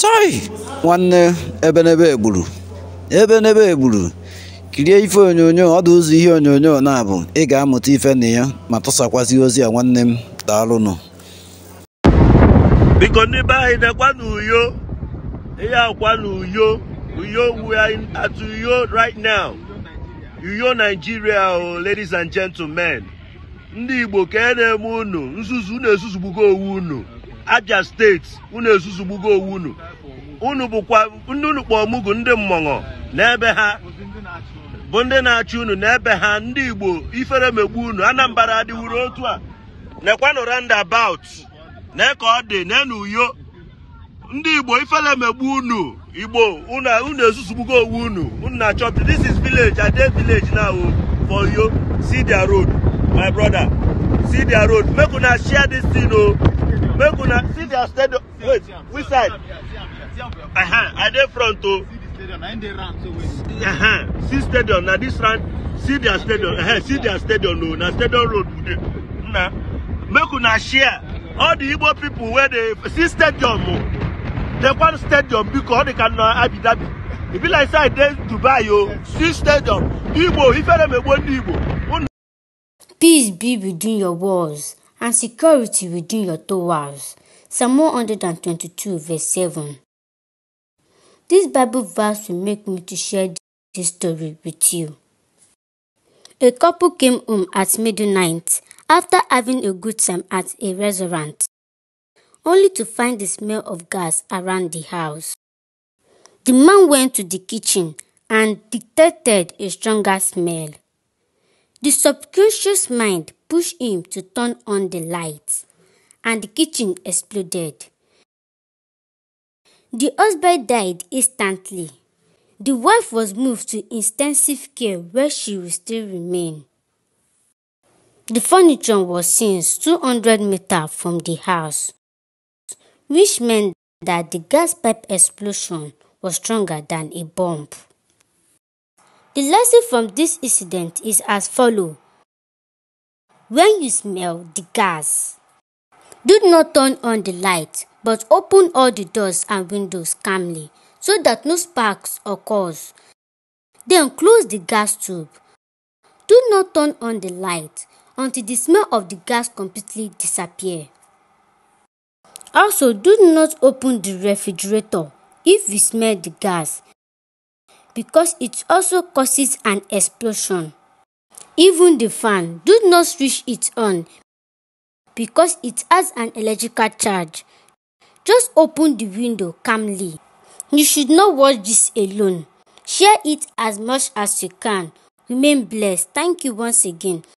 chọị nwanne ebenebe egburu ebenebe egburu kirie ife onyonyo ọdụ ụzọ ihe onyonyo na-abụ ị ga-amụta ife na ya ma tụsakwazi ozi a nwanne m daalụnụ biko n'ebe anyị na-ekwa n'uyo ihe akwa n'uyo uyo we are at uyo right now uyo Nigeria o oh, ladies and gentlemen ndị Igbo ka e na-eme unu nzuzu na-ezuzugbugo owu unu Abia steeti unu ezuzugbugo owu unu unu bụkwa unu kpọọ mugu ndị mmọnwụ n'ebe ha bụ ndị na-achị unu n'ebe ha ndị Igbo ifere megbu unu Anambra adịwuru otu a nekwanụ roundabout na ka ọ dị na n'uyo ndị Igbo ifere megbu unu Igbo unu ezuzugbugo owu unu unu na-achọ this is village Ade village na now for yo see their road my brother see their road make una share this thing o oh. Make una see their stadium. Wait, which side? Uh huh. I dey front o. Uh-huh. See stadium. Now this round, see their stadium. Uh-huh. See their stadium. No, now stadium road. Now, make una share all the Igbo people where they see stadium. Oh. They want stadium because they can Abu Dhabi. It be like say I Dubai yo. Oh, see stadium. Igbo, if I dem Igbo, Igbo. Peace be between your walls and security within your doorways. Psalm 122, verse 7. This Bible verse will make me to share this story with you. A couple came home at midnight after having a good time at a restaurant, only to find the smell of gas around the house. The man went to the kitchen and detected a stronger smell. The subconscious mind pushed him to turn on the lights, and the kitchen exploded. The husband died instantly. The wife was moved to intensive care where she will still remain. The furniture was since 200 meters from the house, which meant that the gas pipe explosion was stronger than a bomb. The lesson from this incident is as follows. When you smell the gas, do not turn on the light, but open all the doors and windows calmly so that no sparks occur. Then close the gas tube. Do not turn on the light until the smell of the gas completely disappears. Also, do not open the refrigerator if you smell the gas because it also causes an explosion. Even the fan, do not switch it on because it has an electrical charge. Just open the window calmly. You should not watch this alone. Share it as much as you can. Remain blessed. Thank you once again.